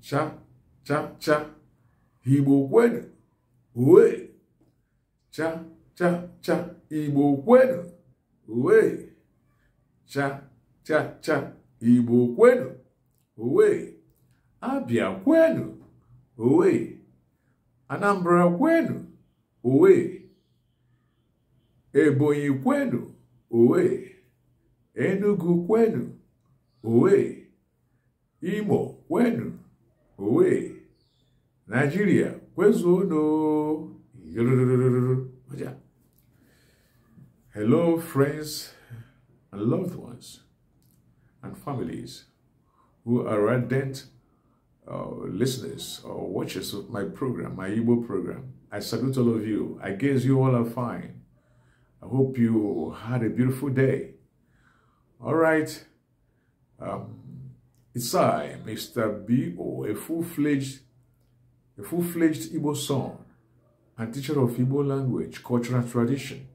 cha cha cha igbo kwenu uwe cha cha cha igbo kwenu uwe cha cha cha igbo kwenu uwe abịa kwenu uwe anambra kwenu uwe ebonyi kwenu uwe enugu kwenu uwe imo kwenu Owe, Nigeria, Kwezodo. Hello, friends and loved ones and families who are ardent uh, listeners or watchers of my program, my Igbo program. I salute all of you. I guess you all are fine. I hope you had a beautiful day. All right. Um, it's I, Mr. B.O., a full-fledged a full-fledged Igbo son and teacher of Igbo language, culture, and tradition,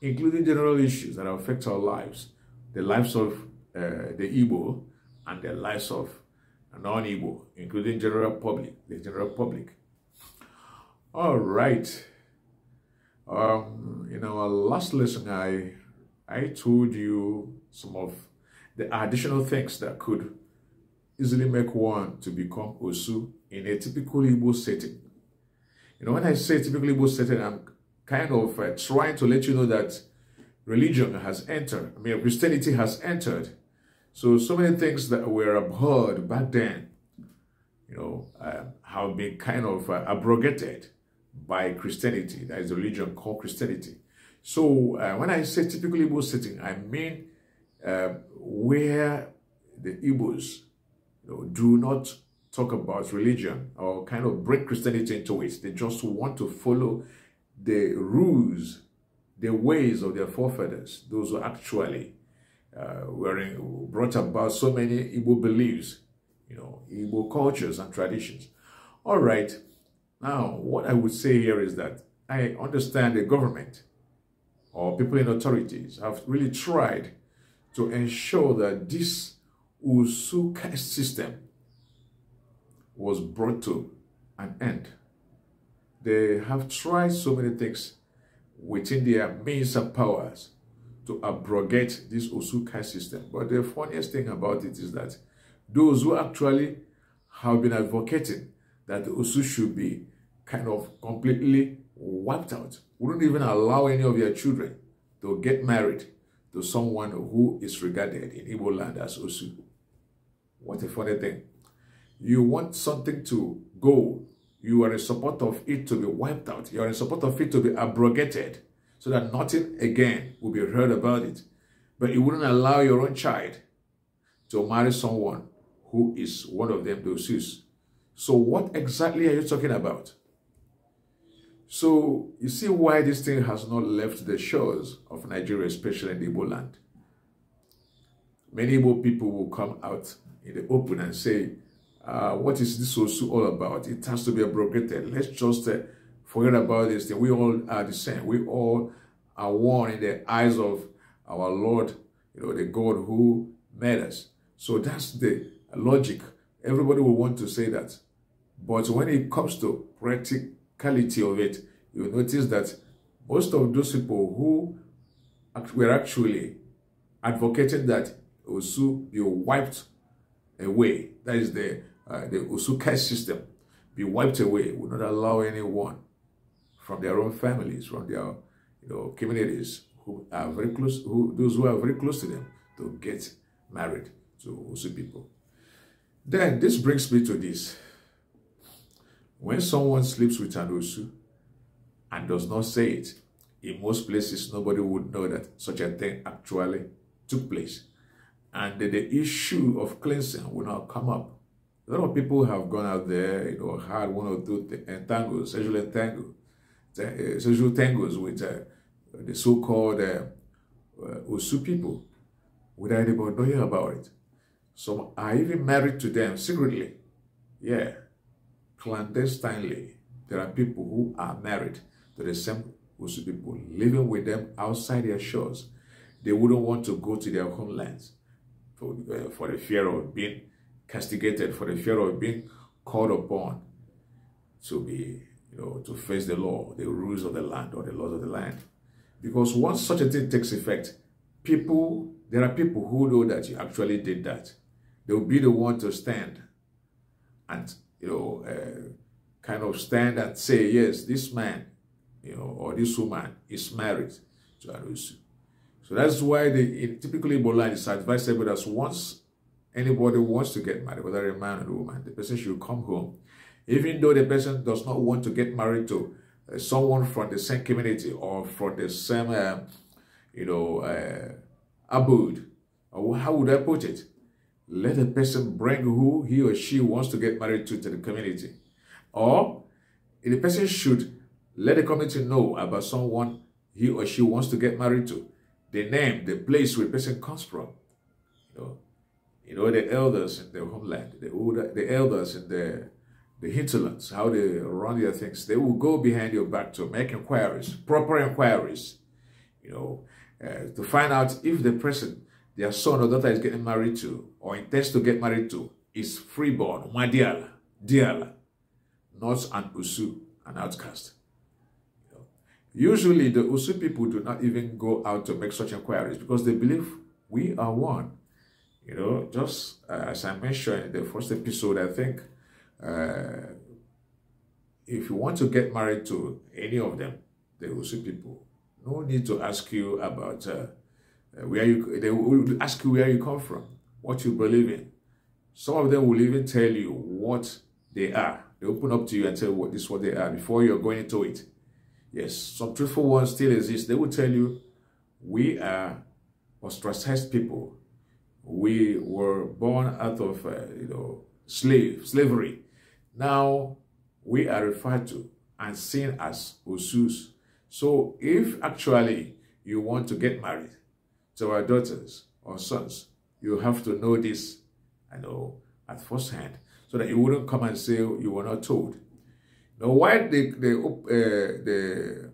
including general issues that affect our lives, the lives of uh, the Igbo and the lives of non-Igbo, including general public, the general public. All right. Um, in our last lesson, I I told you some of the additional things that could easily make one to become Osu in a typical Igbo setting. You know, when I say typical Igbo setting, I'm kind of uh, trying to let you know that religion has entered. I mean, Christianity has entered. So, so many things that were abhorred back then, you know, uh, have been kind of uh, abrogated by Christianity. That is a religion called Christianity. So, uh, when I say typical Igbo setting, I mean uh, where the Igbos do not talk about religion or kind of break Christianity into it. They just want to follow the rules, the ways of their forefathers, those who actually uh, were in, brought about so many Igbo beliefs, you know, Igbo cultures and traditions. All right, now what I would say here is that I understand the government or people in authorities have really tried to ensure that this caste system was brought to an end. They have tried so many things within their means and powers to abrogate this caste system. But the funniest thing about it is that those who actually have been advocating that the Usu should be kind of completely wiped out, wouldn't even allow any of their children to get married to someone who is regarded in Igbo land as Osu. What a funny thing. You want something to go. You are in support of it to be wiped out. You are in support of it to be abrogated so that nothing again will be heard about it. But you wouldn't allow your own child to marry someone who is one of them, those who's. So what exactly are you talking about? So you see why this thing has not left the shores of Nigeria, especially in the land many more people will come out in the open and say, uh, what is this Osu all about? It has to be abrogated. Let's just uh, forget about this thing. We all are the same. We all are one in the eyes of our Lord, you know, the God who made us. So that's the logic. Everybody will want to say that. But when it comes to practicality of it, you notice that most of those people who were actually advocating that Usu be wiped away. That is the, uh, the Usu cash system. Be wiped away. Will not allow anyone from their own families, from their you know, communities who are very close, who those who are very close to them to get married to Usu people. Then this brings me to this. When someone sleeps with an Usu and does not say it, in most places nobody would know that such a thing actually took place and the issue of cleansing will not come up. A lot of people have gone out there, you know, had one or two entangles, eh, sexual entangles, eh, sexual tangles with uh, the so-called uh, Osu people without anybody knowing about it. Some are even married to them secretly. Yeah, clandestinely. There are people who are married to the same Usu people, living with them outside their shores. They wouldn't want to go to their homelands for, uh, for the fear of being castigated, for the fear of being called upon to be, you know, to face the law, the rules of the land, or the laws of the land. Because once such a thing takes effect, people, there are people who know that you actually did that. They will be the one to stand and, you know, uh, kind of stand and say, yes, this man, you know, or this woman is married to Arusu. So that's why they in typically Ebola is advised everybody as once anybody wants to get married, whether a man or a woman, the person should come home. Even though the person does not want to get married to uh, someone from the same community or from the same, uh, you know, uh, abode, or how would I put it? Let the person bring who he or she wants to get married to to the community. Or the person should let the community know about someone he or she wants to get married to the name, the place where a person comes from. You know, you know the elders in their homeland, the older, the elders in the the hinterlands, how they run their things. They will go behind your back to make inquiries, proper inquiries. You know, uh, to find out if the person their son or daughter is getting married to or intends to get married to is freeborn, madiala, diala, not an usu, an outcast. Usually, the Usu people do not even go out to make such inquiries because they believe we are one. You know, just uh, as I mentioned in the first episode, I think uh, if you want to get married to any of them, the Usu people, no need to ask you about uh, where you. They will ask you where you come from, what you believe in. Some of them will even tell you what they are. They open up to you and tell you what this is what they are before you're going into it. Yes, some truthful ones still exist. They will tell you, we are ostracized people. We were born out of, uh, you know, slave, slavery. Now, we are referred to and seen as usus." So, if actually you want to get married to our daughters or sons, you have to know this, I know, at first hand, so that you wouldn't come and say you were not told. Now, why the, the, uh, the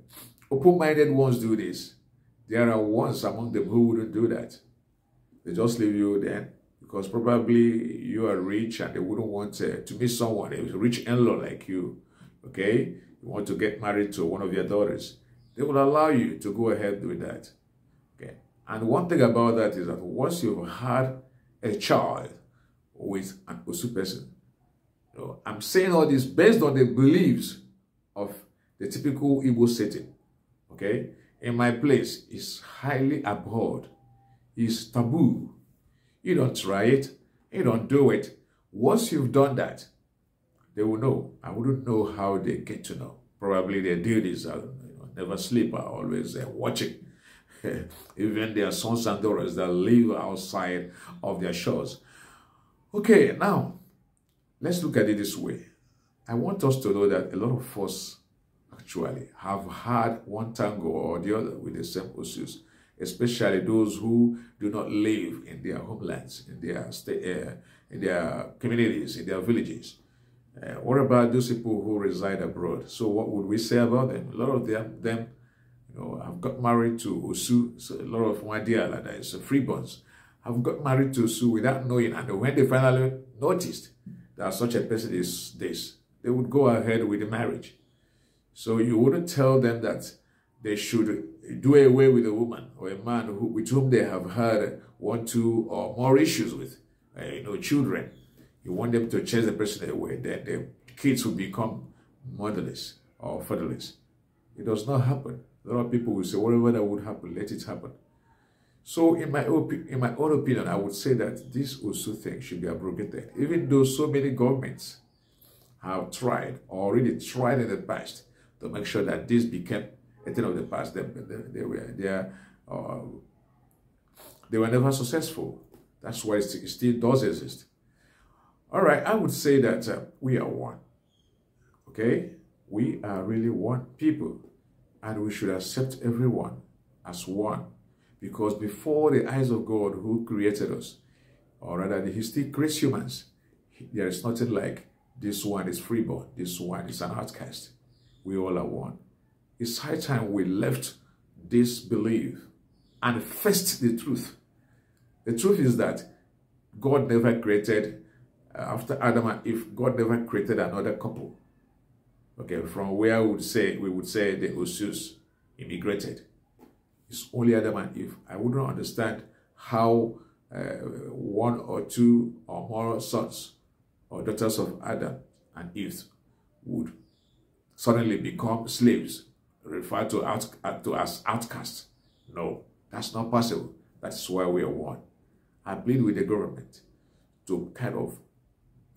open-minded ones do this? There are ones among them who wouldn't do that. They just leave you then because probably you are rich and they wouldn't want uh, to meet someone, a rich in-law like you, okay? You want to get married to one of your daughters. They will allow you to go ahead with that, okay? And one thing about that is that once you've had a child with an Osu person, know, I'm saying all this based on the beliefs of the typical Igbo setting. Okay? In my place is highly abhorred, is taboo. You don't try it, you don't do it. Once you've done that, they will know. I wouldn't know how they get to know. Probably their duties are you know, never sleep, are always uh, watching. Even their sons and daughters that live outside of their shores. Okay, now Let's look at it this way. I want us to know that a lot of us actually have had one tango or the other with the same issues, especially those who do not live in their homelands, in their uh, in their communities, in their villages. Uh, what about those people who reside abroad? So what would we say about them? A lot of them, them you know, have got married to Osu. So a lot of Wadiala, that is freeborns, have got married to Osu without knowing. And when they finally noticed, that such a person is this, they would go ahead with the marriage. So you wouldn't tell them that they should do away with a woman or a man who, with whom they have had one, two, or more issues with, uh, you know, children. You want them to chase the person away. Then the kids will become motherless or fatherless. It does not happen. A lot of people will say, whatever that would happen, let it happen. So in my, in my own opinion, I would say that this also thing should be abrogated, even though so many governments have tried, already tried in the past, to make sure that this became a thing of the past. They, they, they were, they, are, uh, they were never successful. That's why it still does exist. All right, I would say that uh, we are one. Okay? We are really one people, and we should accept everyone as one. Because before the eyes of God who created us, or rather he still creates humans, there is nothing like this one is freeborn, this one is an outcast. We all are one. It's high time we left this belief and faced the truth. The truth is that God never created, uh, after Adam and Eve, God never created another couple. Okay, from where I would say, we would say the Osus immigrated is only Adam and Eve. I wouldn't understand how uh, one or two or more sons or daughters of Adam and Eve would suddenly become slaves, referred to, out, to as outcasts. No, that's not possible. That's why we are one. I plead with the government to kind of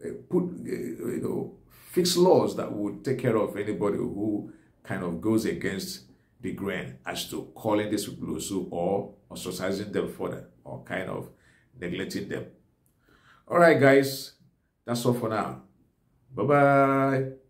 uh, put, uh, you know, fix laws that would take care of anybody who kind of goes against the grain as to calling this people also or ostracizing them further or kind of neglecting them. All right, guys, that's all for now. Bye-bye.